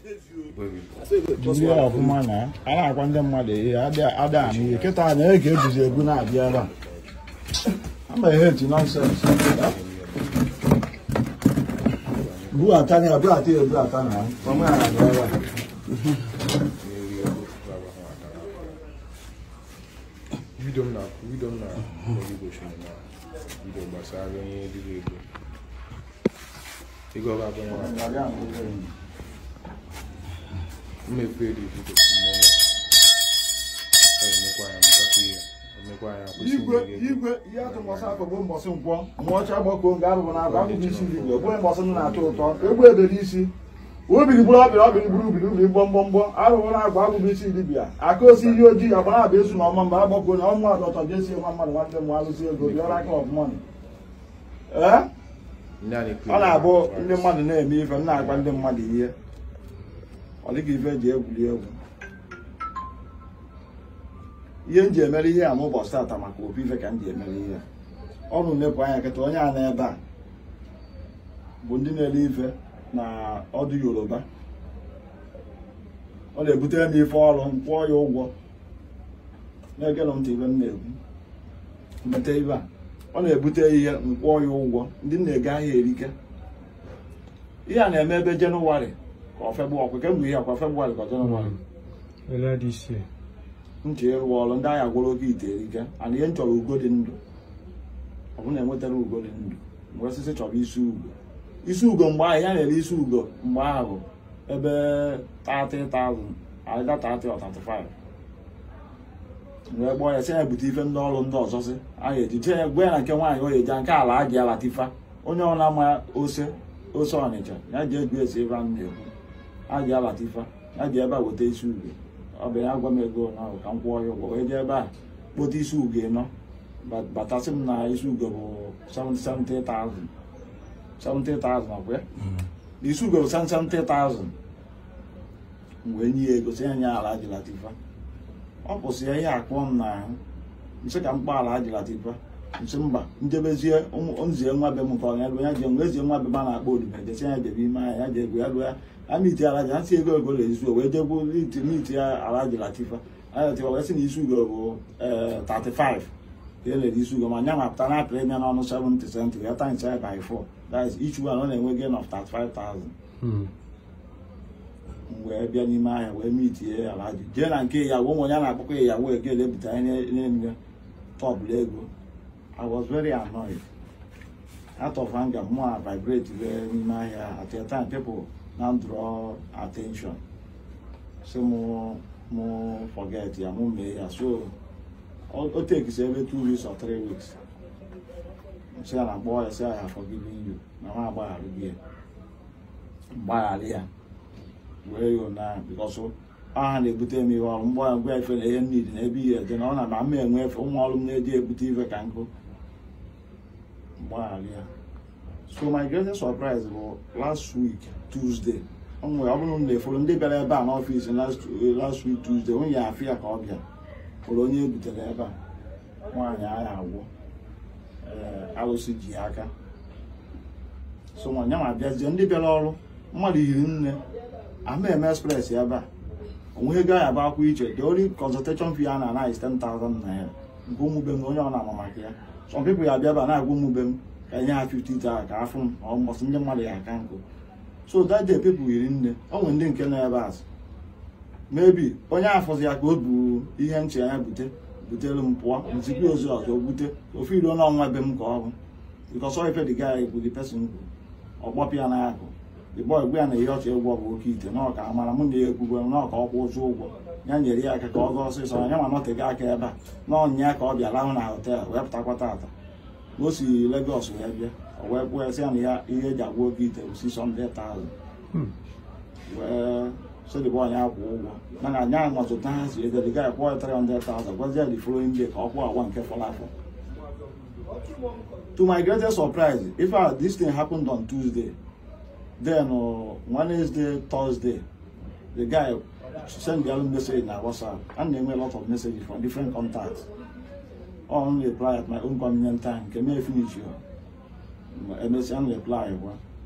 jiri ya ọfụma na a na-akwa ndị mmadụ ihe adịghị anụ ihe kịta na ege e egwu na-abịa ebe a ama ihe etu nọnsensị ya buata ya buata na na-abịa ebe a mmekwa eribu gosiri igwe ihe atụ ihe akọ bụ mbọsị nkwọ ma ọcha abụbụ na ndị igwe bụ atọ ụtọ isi obiri bịa obiri na isi aka osi ihe ojii agba na-abụ esu na ọma mgbe agbakọ na ọnwa ọdụ ọtọ jesi nwa mmadụ nwanne mụ alụzi ego aka ee ọ na-abụ ndị mmadụ na-eme ife m na-agwa ndị mmadụ ihe ọ dịghị ife eji egwuri egwu ihe m ji emere ihe a m ụbọchị maka obi ife ka m ji emere ihe ọ bụ anya nkịta onye a ebe a bụ ndị na-ele ife na ọdụ yoruba ọ na-ebutere m ife ọrụ m kwụọ ya ụgwọ na-egere ntị ibe m na-egwu mbata ibe a ọ na-ebute ihe m kwụọ ya ụgwọ ndị m na-ege ahịa erike ihe a na-eme ebe jenụwarị or February, we can be here for February ndị agha gwụrụ gị ite ike ana ihe nchọrọ ugo ndụ ọ na enwetara ugo dị ndụ mgbe isi ugo isi ugo mgbe ahụ ya na-ere isi ugo mgbe ahụ ebe 30,000 aịda mgbe ya sị ya ebute ife ndị ọrụ ndị ọzọ sị a ejije eji jee ya nke nwaanyị onye nke ala a ga-alatifa onye ọrụ ose ose ọnịcha ya ji egwu esi ebe a na a ji abata ife a ji ebe a weta isi uge ọ ya agwa m ego na ka m kwụọ ya ụgwọ wee jee ebe a kpota isi uge nọ batasị m na isi uge bụ 70,000 70,000 mm-hmm. isi uge bụ 70,000 mgbe nye ya ego si anya ala ajilatifa ọ kwụsị ya ihe akpọ m n'ahụ nsị ka m kpọ ala ajilatifa nsi mba njebezie nzie nwa be m nke ọnya ebe ya ji nwa ezi nwa be ma na-akpọ odibo e jesi ya jebe ime aha ya ji ego ya gụ ya amiti alaji ha si ego ego na ezu wee jegbu miti ya alaji latifa alatifa wee sị na isi ugo bụ 35 eh, ka elere isi ugo ma nya mapụta na apịrị ya n'ọnụ 70 cent ya times ya by 4 that's each one ọ na-enwe gain of 35000 hmm. wee bịa n'ime ahịa wee mitie alaji jee na nke ya nwe ụmụ a na-akpọkọ ya yawo ego ele ebute na-enye tọbụla ego I was very annoyed. Out of anger, more I vibrate ahịa At that time, people now draw attention. So more, more forget, yeah, more me. So it takes every two weeks or three weeks. Say, I'm ah, boy, I say, I have forgiven you. Now I'm boy, I'll be here. Where you now? Because so, aha na-ebute m ihe ọrụ mgbe ngwa efe na ihe mmiri na ebe ihe dị na ọ na enwe ụmụ ọrụ m na-eji ebute ife ka nkụ mgbaghara so my greatest surprise bụ last week Tuesday ọ bụrụ na-eforo ndị bịara ebe a n'ọfịs last week Tuesday onye afọ ya ka ọ bịa hụrụ onye ebutere ebe a nwaanyị agha agwọ alụsị ji aka so nwa nyanwa abịazie ndị bịara ọrụ mmadụ yiri nne ama eme express ebe a onweghị ego ahụ bụ akwụ iche the only consultation fee a na-ana is 10,000 naira nke ụmụ be onye ọ na-ama maka ya some people ya abịaba na-agwa m ube m ka nye ha 50 ka afụ m ọmọsị ndị mmadụ ya aka nkụ so that day people yiri nne ọ nwere ndị nke na ebe azụ mebi onye afọzi ya ka o bu ihe nche ya bute butere m pụọ nzikwa ozi ọzọ bute ofe iro n'ọnwa be m ka ọ bụ because ife the guy bụ the person ọgbọpịa na akụ the boy gwa ya na ihe ọchọ egwu ọ bụ ite n'ọka amara mụ na ya ekwugwe n'ọka ọkwụ ụzụ ụgwọ ya nyere ya aka ka ọ gaa ọsịsọ ya nwa nọtega aka ebe a n'ọnya ya ka ọ bịa lahụ na họtel wee pụtakwa taata o si Lagos wee bịa ọ wee kwụọ esi ya na ya ihe eji agwa oge ite si sọnde taazụ wee sodịba onye akwụ ụgwọ mana anya anọtụta ha si edeliga ya kwụọ 300,000 gwazie the following day ka ọ kwụọ agwa nke fọrọ afọ to my greatest surprise if this thing happened on Tuesday then Wednesday Thursday the guy send their own message in WhatsApp, and they made a lot of messages from different contacts. I only reply at my own convenient time. Can I finish you? MSN only reply.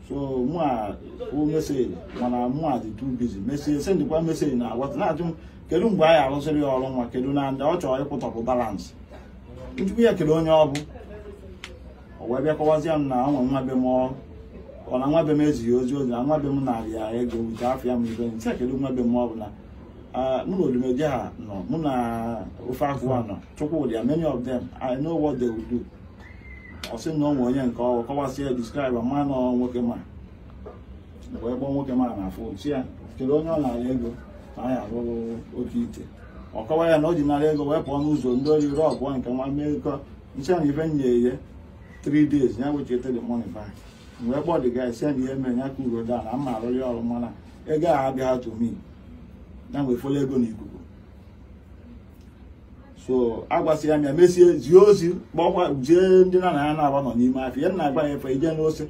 So more who message when I'm more too busy. Message send the one message now. What not to kedu mgbe anyị arụsịrị ya ọrụ nwa kedu na ndị ọ chọrọ ịpụtapụ balans nchukwu ya kedu onye ọ bụ o wee bịakọwazie m na ọ nwe nwa be m ọ na nwa be m ezighị ozi ozi na nwa be m narị ya ego nke afọ ya m ibe nsị kedu nwa be m ọbụla mụ na olumeje ha nọ mụ na ofe agụwa nọ chukwudia many of them I know what they will do ọ sị na ọ onye nke ọwụ ya describe ma na nwoke ma mgbe ebe nwoke ma na afọ chi ya kedu onye ọ narị ego na anyị arụrụ oke ite ọ kọwa ya na o ji narị ego wee pụọ n'ụzọ ndị ori rọbụọ nke nwa mmekọ nche na ibe nye ye 3 days ya wechitere money back wee gbọdị ga ese na ihe mere ya ka uro da na mma arụrị ọrụ mana ego ahụ abịaghị tomi ya nwe folo ego na ikuku so agwasị ya m ya e mesie zie ozi kpọkwa jee ndị na na ya na-agba nọ n'ime afọ ihe nna agbaghị efe ije n'ose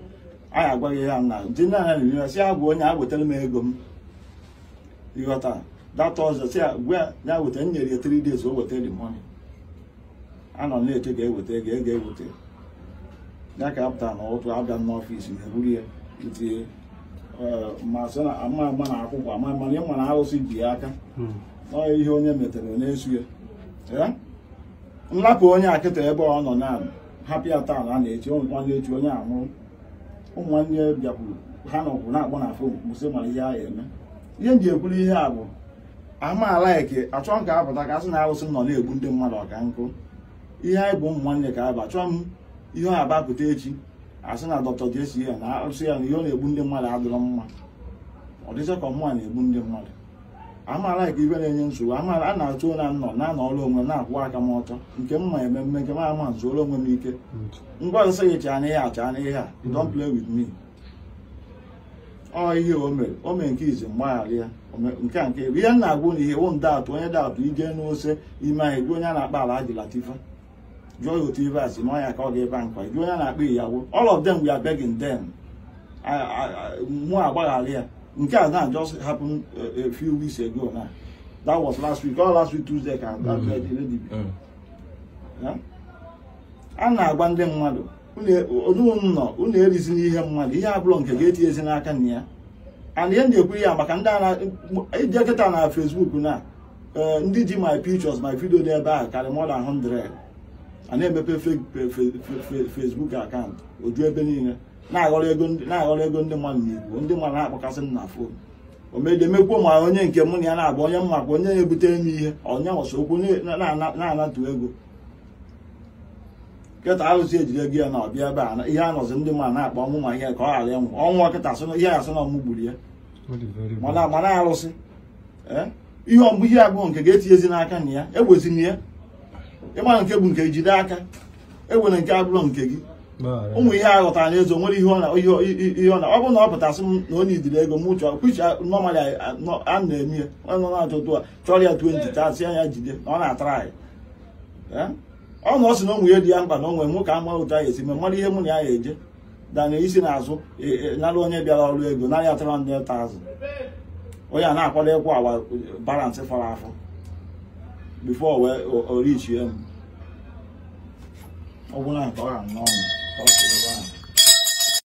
anyị agwaghị ya na ndị nna ya na-eme si agwa onye a m ego m ịghọta data ọzọ si gwa ya weta nyere ya tiri days o weta the money anọ na-eche e ga eweta ego ego eweta ya ka a pụtara n'ụtụ abịa n'ọfịs e, ma eburu ya itinye ama ama na akwụkwọ ama ama na ịma na arụsị bi aka hmm. ọ ihe onye metere na-esu ya nlapụ onye akịta ebe ọ nọ na hapụ ya taa na a na-echi nwanne echi onye anwụrụ ụmụnne bịakwuru ha nọkwụ na-akpọ na fon kwụsị mara ihe ahụ eme ihe m ji ekwuru ihe a bụ amaala eke achọ m ka apụta ka a sị na arụsị nọ na-egbu ndị mmadụ ọka nkụ ihe anyị bụ ụmụ ka anyị achọ. m ihe ọ na-agbapụta echi asị na dọkịta ga-esi ya na asị ya na ihe ọ na-egbu ndị mmadụ adịrọ mma ọ dịcha ka na-egbu ndị mmadụ amaala ka ibe na-enye nsogbu amaala a na-achụ ụra nọ na-anọ ọrụ onwe m na-akwụ aka m ọtọ nke mma ememme nke m ama nzuoro onwe m ike ngwa ọzọ sị gị chaa ihe a chaa n'ihe a play with me ọ ihe o mere o mere nke izi mgbaghara ya nke a nke ihe m na-agwụ na ihe wụ ndatụ onye atụ ije n'ose ime anyị gwa onye a na-akpa ala ajilatifa jụọ ya otu ka ọ ga-eba nkwa jụọ na-akpa iyawo all of them we are begging them mụ agbaghara ya nke a na just happened a few weeks ago na that was last week all last week Tuesday ka mm-hmm. a na-agba ndị mmadụ e, unu nọ unu erizi n'ihe mmadụ ihe abụrụ nke ga-eti and ihe na ya maka ije na fesbuk e, na eh, ndị ji my pictures my video dị ebe karịa more than 100 a na-emepe Facebook akaụntụ oju ebe niile na-aghọrọ ego ndị mmadụ n'igbo ndị mmadụ na-akpọkasị m na fon omedemekwuo ma onye nke mụ na ya na-agba onye mma ka onye na-ebutere m ihe onye nwụsị okwu na-anatụ ego nkịta arụsị ejide gị ya na ọbịa ebe a ihe anọzi ndị mmadụ na-akpọ ọnwụ ma ihe ka ọ ghara ịnwụ ọnwụ ọkịta ihe asị na ọmụ gburu ya mana arụsị eh? ihe ọmgbe ihe agụụ nke ga-etinyezi n'aka na ya egbezina ya ịma nke bụ nke jide aka enwere nke abụrụ nke gị ụmụ ihe a ghọtara n'ezo nwere ihe ọ na ọ bụrụ na ọ pụtasị m na onye idiri ego m chọọ kpichi nọmalị a na-eme ya nọ na-achọtụ a chọrọ ya 20 tasịa ya jide na ọ na-atara anyị eh? ọ na ọ sị na ụmụ ya dị ya mkpa na onwe m ka ama ụta ya esi ma mmadụ ihe mụ na ya eje dana isi azụ e, e, nara onye bịara ọrụ ego narị atara ndị ta azụ onye a na-akwado ịkwụ agwa balansị fara afọ before we orich ya m ọ bụla nke ọ ga-anwụ ọnwụ